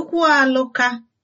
tupu alụka